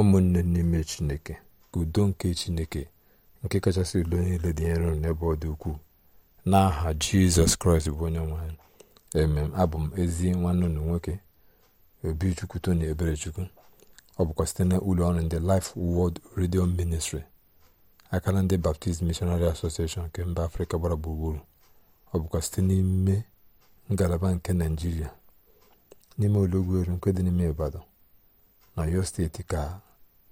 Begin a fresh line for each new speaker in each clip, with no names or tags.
ụmụnne n'ime chineke ka udo nke chineke nke kachasị udo niile dị nro n'ebe ọ dị ukwuu n'aha jizọs kraịst bụ onye nwanyị emem abụ m ezi nwanne unu nwoke obi chukwu tony ebere chukwu ọ bụkwa site na ụlọ ọrụ ndị Life Word Radio Ministry akara ndị Baptist Missionary Association nke mba afrịka gbara gburugburu ọ bụkwa site n'ime ngalaba nke naijiria n'ime olọgwu eru nke dị n'ime Ibadan na yo steeti ka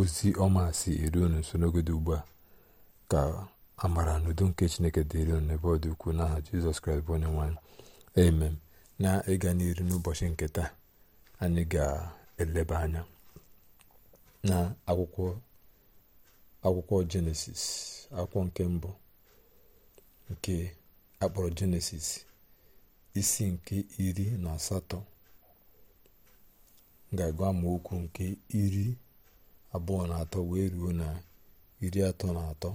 ozi ọma si eru unu nso n'oge dị ugbu a ka amara na nke chineke dịrị unu n'ebe ọ dị ukwuu n'aha jizọs kraịst bụ onye nwanyị emem na ịga n'iru n'ụbọchị nke taa anyị ga-eleba anya na akwụkwọ akwụkwọ jenesis akwụkwọ nke mbụ nke akpọrọ jenesis isi nke iri na asatọ ga-agụ amaokwu nke iri abụọ na atọ wee ruo na iri atọ na atọ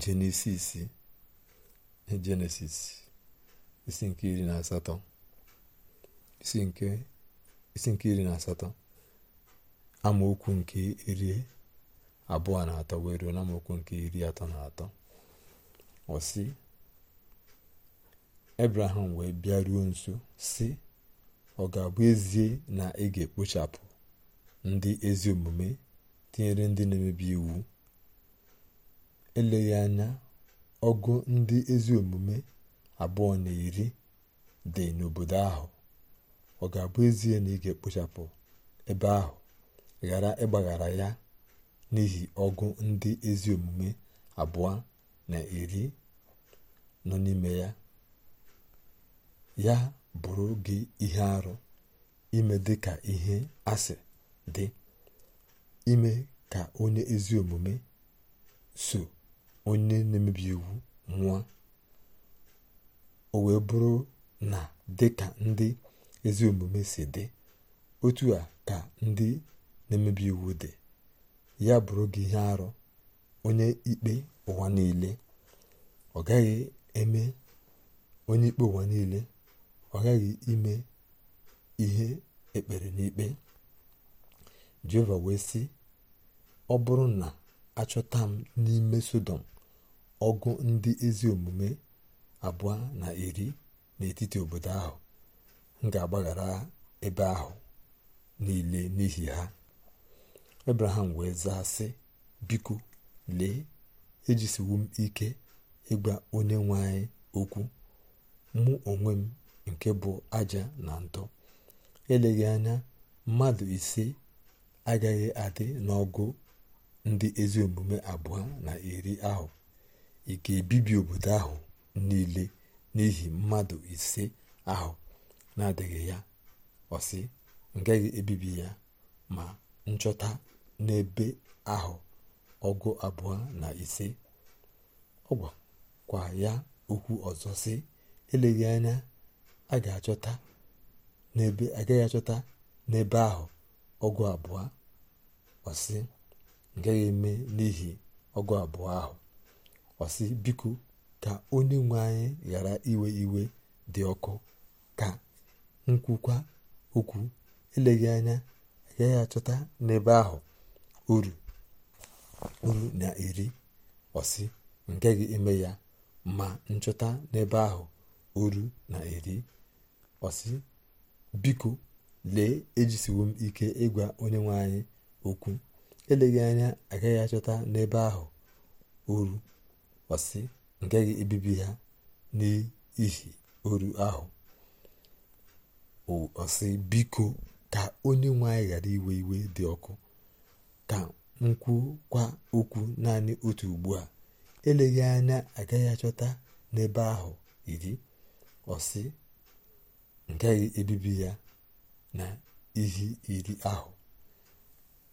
jenesis jenesis isi nke iri na asatọ isi nke isi iri amaokwu nke iri abụọ na atọ wee ruo na amaokwu nke iri atọ na atọ ọsị ebraham wee bịaruo nso si ọ ga-abụ ezie na ị ga-ekpochapụ ndị ezi omume tinyere ndị na-emebi iwu eleghị anya ọgụ ndị ezi omume abụọ na iri dị n'obodo ahụ ọ ga-abụ ezie na ị ga-ekpochapụ ebe ahụ ghara ịgbaghara ya n'ihi ọgụ ndị ezi omume abụọ na iri nọ n'ime ya ya bụrụ gị ihe arụ ime dịka ihe asị dị ime ka onye ezi omume so onye na-emebi iwu nwụọ o wee bụrụ na dị ka ndị ezi omume si dị otu a ka ndị na-emebi iwu dị ya bụrụ gị ihe arụ onye ikpe ụwa niile ọ gaghị eme onye ikpe ụwa niile ọ gaghị ime ihe ekpere n'ikpe jehova wee sị ọ bụrụ na achọta m n'ime sodom ọgụ ndị ezi omume abụọ na iri n'etiti obodo ahụ m ga-agbaghara ebe ahụ niile n'ihi ha abraham wee zaa sị biko lee ejisiwu m ike ịgba onye nwe anyị okwu mụ onwe m nke bụ aja na ntọ eleghị anya mmadụ ise agaghị adị n'ọgụ ndị ezi omume abụọ na iri ahụ ike ebibi obodo ahụ niile n'ihi mmadụ ise ahụ na-adịghị ya ọsị ngaghị ebibi ya ma nchọta n'ebe ahụ ọgụ abụọ na ise ọ kwa ya okwu ọzọ si eleghị anya a ga-achọta n'ebe agaghị achọta n'ebe ahụ ọgụ abụọ ọsị gaghị eme n'ihi ọgụ abụọ ahụ ọsị biko ka onye nwe anyị ghara iwe iwe dị ọkụ ka nkwukwa okwu eleghị anya agaghị achọta n'ebe ahụ uru uru na eri ọsị ngaghị eme ya ma nchọta n'ebe ahụ uru na eri ọsị biko lee ejisiwo m ike ịgwa onye nwe anyị okwu eleghị anya agaghị achọta n'ebe ahụ oru ọsị ngaghị ebibi ha n'ihi oru ahụ ọsị biko ka onye nwe anyị ghara iwe iwe dị ọkụ ka m kwa okwu naanị otu ugbu a eleghị anya agaghị achọta n'ebe ahụ iri ọsị ngaghị ebibi ya na ihe iri ahụ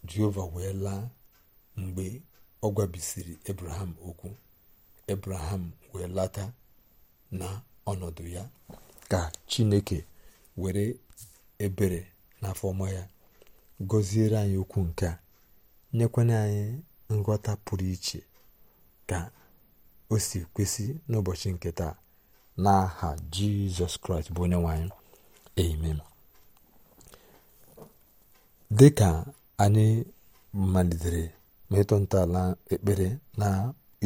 jehova wee laa mgbe ọ gwabisiri ebraham okwu ebraham wee lata na ọnọdụ ya ka chineke were ebere n'afọ ọma ya gọziere anyị okwu nke a nyekwana anyị nghọta pụrụ iche ka o si kwesị n'ụbọchị nke taa n'aha jizọs kraịst bụ onye nwe anyị amen dịka ka anyị malitere metụ ntọala ekpere na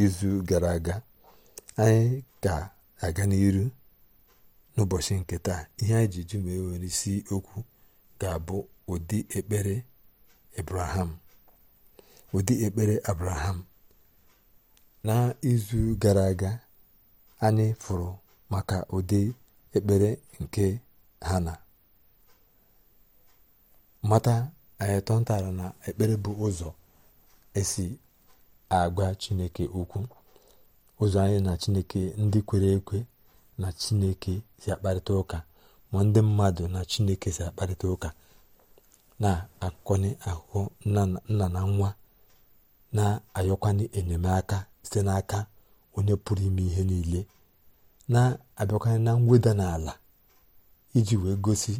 izu gara aga anyị ga-aga n'iru n'ụbọchị nke taa ihe anyị ji jụ ma ewere isi okwu ga-abụ ụdị ekpere abraham ụdị ekpere n'izu gara aga anyị fụrụ maka ụdị ekpere nke hana mata anyị tọntara na ekpere bụ ụzọ esi agwa chineke okwu ụzọ anyị na chineke ndị kwere ekwe na chineke si akparịta ụka ma ndị mmadụ na chineke si akparịta ụka na-akọnye ahụhụ nna na nwa na-ayọkwanye enyemaka site n'aka onye pụrụ ime ihe niile na-abịakwanye na mweda n'ala iji wee gosi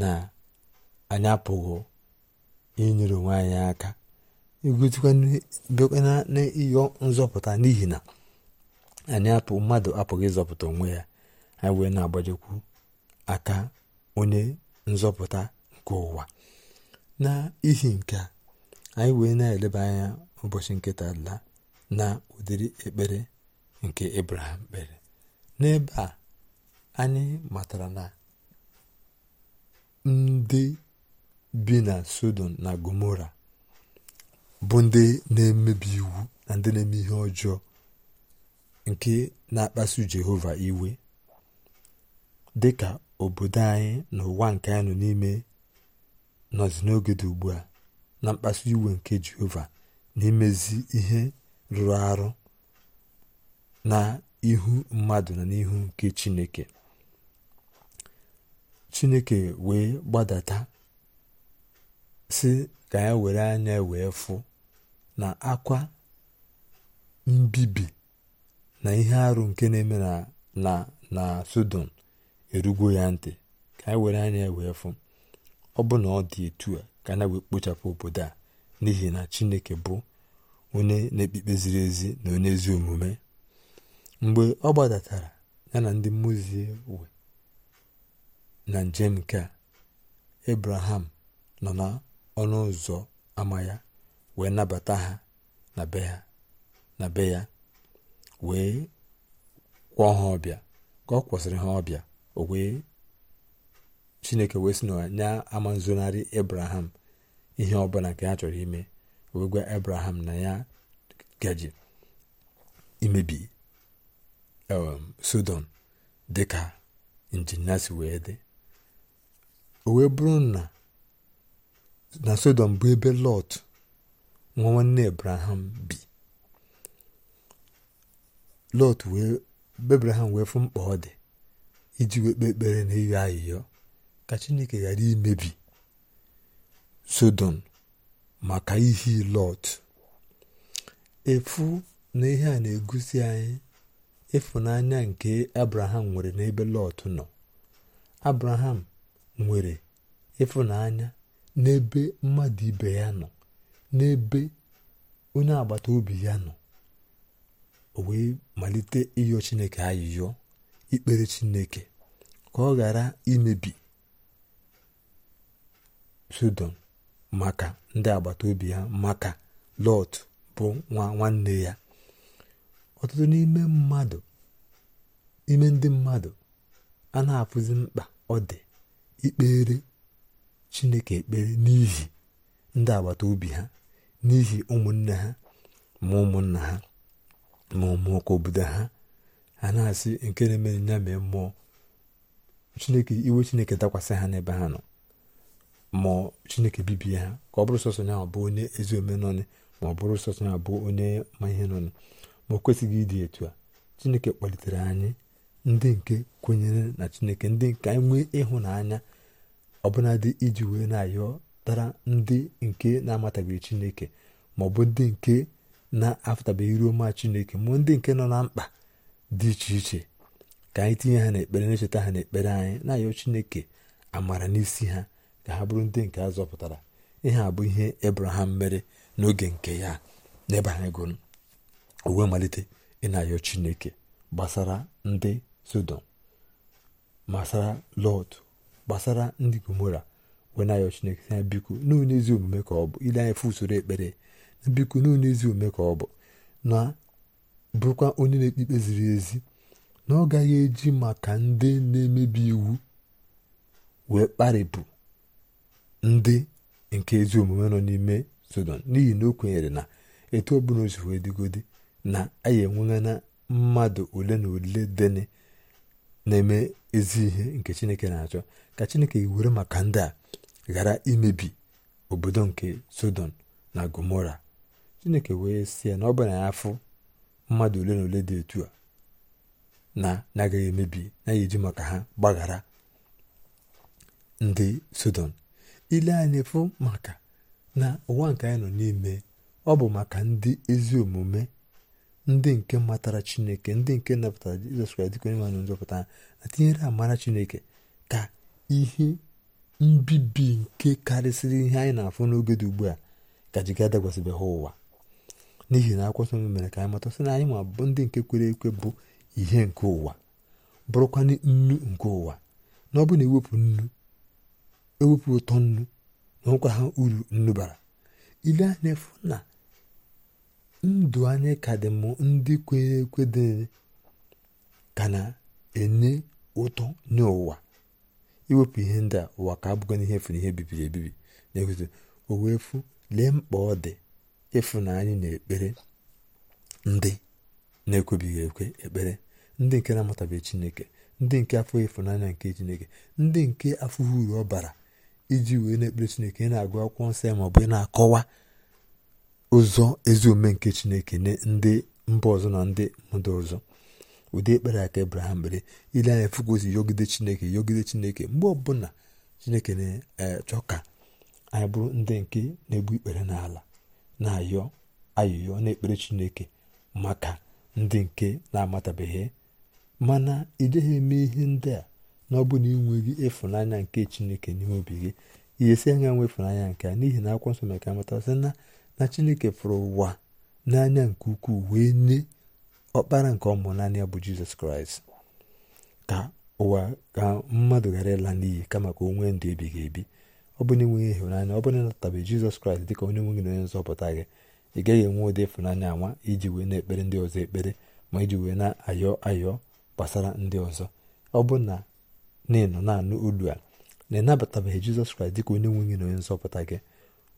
na anyị apụghị inyere onwe anyị aka bịakwa na ịyọ nzọpụta n'ihi na anyị apụ mmadụ apụghị ịzọpụta onwe ya anyị wee na-agbajekwu aka onye nzọpụta nke ụwa n'ihi nke a anyị wee na-eleba anya ụbọchị nke la na ụdịrị ekpere nke Abraham kpere n'ebe a anyị matara na ndị bi na sodom na gomora bụ ndị na-emebi iwu na ndị na-eme ihe ọjọọ nke na-akpasu jehova iwe dị ka obodo anyị na ụwa nke anyị nọ n'ime nọzi n'oge dị ugbu a na mkpasu iwe nke jehova na ihe rụrụ arụ na ihu mmadụ na n'ihu nke chineke chineke wee gbadata si ka ya e were anya e wee fụ na akwa mbibi na ihe arụ nke na-eme na na na Sodom erugo ya ntị ka anyị e were anya wee fụ ọ bụ na ọ dị etu a ka na wee kpochapụ obodo a n'ihi na Chineke bụ onye na ekpekpe ziri ezi na onye ezi omume mgbe ọ gbadatara ya na ndị mmuzi we na njem nke a ebraham nọ na ọnụ ụzọ ama ya wee nabata ha na be ha na be ya wee kwọọ ha ọbịa ka ọ kwụsịrị ha ọbịa o wee chineke wee sị na ya ama nzonarị abraham ihe ọbụla nke ya chọrọ ime wee gwa abraham na ya gaji imebi um, sodom dịka injinia si wee dị o wee bụrụ na na sodom bụ ebe lọt nwa nwanne ebraham bi lọt wee ebraham wee fụ mkpa ọ dị iji wee kpee ekpere na ịyọ ayịyọ ka chineke ghara imebi sodom maka ihe lọt efu na ihe a na-egosi anyị ịfụnanya nke abraham nwere n'ebe lọt nọ abraham nwere ịfụnanya n'ebe mmadụ ibe ya nọ n'ebe onye agbata obi ya nọ o wee malite ịyọ chineke ayịyọ ikpere chineke ka ọ ghara imebi sodom maka ndị agbata obi ya maka lọt bụ nwa nwanne ya ọtụtụ n'ime mmadụ ime ndị mmadụ a na-afụzi mkpa ọ dị ikpere chineke ekpere n'ihi ndị agbata obi ha n'ihi ụmụnne ha ma ụmụnna ha ma ụmụnwoke obodo ha a na-asị nke na-emere nya mee mmụọ chineke iwe chineke dakwasị ha n'ebe ha nọ ma chineke bibie ha ka ọ bụrụ sọsọ ya bụ onye ezi ome nọnị ma ọ bụrụ sọsọ ya bụ onye ma ihe nọnị ma ọ kwesịghị ịdị etu a chineke kpalitere anyị ndị nke kwenyere na chineke ndị nke anyị nwee ịhụnanya ọbụnadị iji wee na-ayọ tara ndị nke na-amatabeghị chineke maọbụ ndị nke na-afụtabeghị ruo ma chineke ma ndị nke nọ na mkpa dị iche iche ka anyị tinye ha n'ekpere na-echeta ha n'ekpere anyị na-ayọ chineke amara n'isi ha ka ha bụrụ ndị nke azọpụtara zọpụtara ihe a bụ ihe ebraham mere n'oge nke ya n'ebe anyị gụrụ uwe malite ịna na-ayọ chineke gbasara ndị sodom gbasara lọt gbasara ndị gomora wenayo chineke sị ha biko n'ụlọ ezi omume ka ọ bụ ile anya fụ usoro ekpere na biko n'ụlọ ezi omume ka ọ bụ na bụrụkwa onye na-ekpe ikpe ziri ezi na ọ gaghị eji maka ndị na-emebi iwu wee kparịpụ ndị nke ezi omume nọ n'ime sodom n'ihi na o kwenyere na etu ọ o si wee dịgodi na anyị enwela mmadụ ole na ole deni. na-eme ezi ihe nke chineke na-achọ ka chineke were maka ndị a ghara imebi obodo nke sodom na gomora chineke wee si ya na ọ bụ ya afụ mmadụ ole na ole dị etu a na na-agaghị emebi na ji maka ha gbaghara ndị sodom ile anyị fụ maka na ụwa nke anyị nọ n'ime ọ bụ maka ndị ezi omume ndị nke matara chineke ndị nke napụtara jizọs kraịst dịka onye nwanyị nzọpụta na tinyere amara chineke ka ihe mbibi nke karịsịrị ihe anyị na-afụ n'oge dị ugbu a ka jiga dagwasịbe ha ụwa n'ihi na akwụkwọ nsọ mere ka anyị mata sị na anyị ma bụ ndị nke kwere ekwe bụ ihe nke ụwa bụrụkwa nnu nke ụwa na ọ bụ na ewepụ nnu ewepụ ụtọ nnu na ọkwa ha uru nnu bara ile anya efu na ndụ anyị ka dị mụ ndị kwere ekwe dị ka na-enye ụtọ nye ụwa iwepụ ihe ndị a ụwa ka abụghị n'ihe efu n'ihe bibiri ebibi na-ekwuzi o wee fụ lee mkpa ọ dị ịfụ na anyị na-ekpere ndị na-ekwebighị ekwe ekpere ndị nke na-amatabeghị chineke ndị nke afọ ịfụnanya nke chineke ndị nke afọ uru ọ bara iji wee na-ekpere chineke ị na-agụ akwụkwọ nsọ ya ma ọ bụ ị na-akọwa ụzọ ezi ome nke chineke nye ndị mba ọzọ na ndị mmadụ ọzọ ụdị ekpere aka ebraham mere ile anya fukwozi yogide chineke yogide chineke mgbe ọbụla chineke na-achọ e, ka anyị bụrụ ndị nke na-egbu ikpere n'ala na-ayọ ayọyọ na-ekpere chineke maka ndị nke na-amatabeghị mana ị eme ihe ndị a na ọ bụ na enweghị ịfụnanya nke chineke n'ime obi gị ihe esi anya nwefere anya nke a n'ihi na akwụkwọ nsọ mere ka amata sị na na chineke fụrụ ụwa n'anya nke ukwuu wee nye ọkpara nke ọmụ naanị ya bụ jizọs kraịst ka ụwa ka mmadụ ghara ịla n'iyi kama ka o nwee ndụ ebighị ebi ọ bụ na enweghị ịhụnanya ọ bụrụ na ịnatabeghị jizọs kraịst dịka onye nweghị gị na onye nzọpụta gị ị gaghị enwe ụdị ịfụnanya anwa iji wee na-ekpere ndị ọzọ ekpere ma iji wee na-ayọ ayọ gbasara ndị ọzọ ọ bụ na na nọ na-anụ olu a na ịnabatabeghị jizọs kraịst dịka onye nwe na onye nzọpụta gị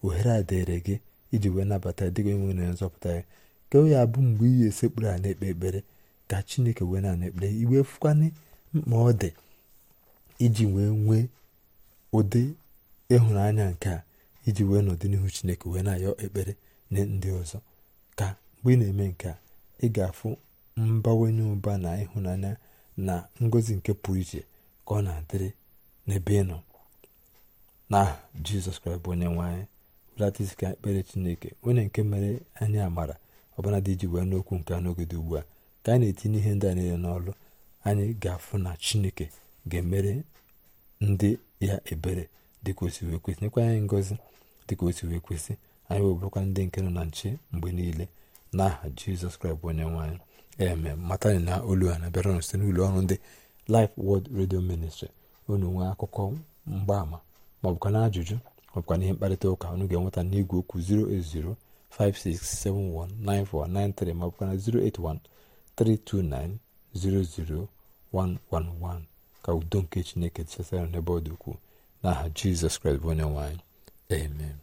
ohere a dịrị gị iji wee nabata dịka onye nwe gị na onye nzọpụta gị ka onye ya abụ mgbe iyi esekpụrụ a na-ekpe ekpere ka chineke wee na ekpere iwe fụkwana mkpa ọ dị iji wee nwee ụdị ịhụnanya nke a iji wee nọdị n'ihu chineke wee na-ayọ ekpere nye ndị ọzọ ka mgbe ị na-eme nke a ị ga-afụ mbawanye ụba na ịhụnanya na ngozi nke pụrụ iche ka ọ na-adịrị n'ebe ị nọ na jizọs kraịst bụ onye anyị belata ka ekpere chineke onye nke mere anyị amara ọbụla dị iji wee n'okwu nke a n'oge dị ugbu a ka anyị na-etinye ihe ndị a niile n'ọlụ anyị ga-afụ na chineke ga-emere ndị ya ebere dịka o si kwesị nyekwa anyị ngozi dịka o si kwesị anyị wee ndị nke nọ na nche mgbe niile n'aha jizọs kraịst bụ onye anyị eme matani na olu a na-abịara site n'ụlọ ọrụ ndị lif wod redio ministri unu nwee akụkọ mgbaama ma ọ bụkwa na ajụjụ ma bụkwa mkparịta ụka unu ga-enweta n'igwe okwu 08056719493 ma bụkwa na 08132900111 ka udo nke chineke chesara n'ebe ọ dị ukwuu n'aha jizọs kraịst bụ onye amen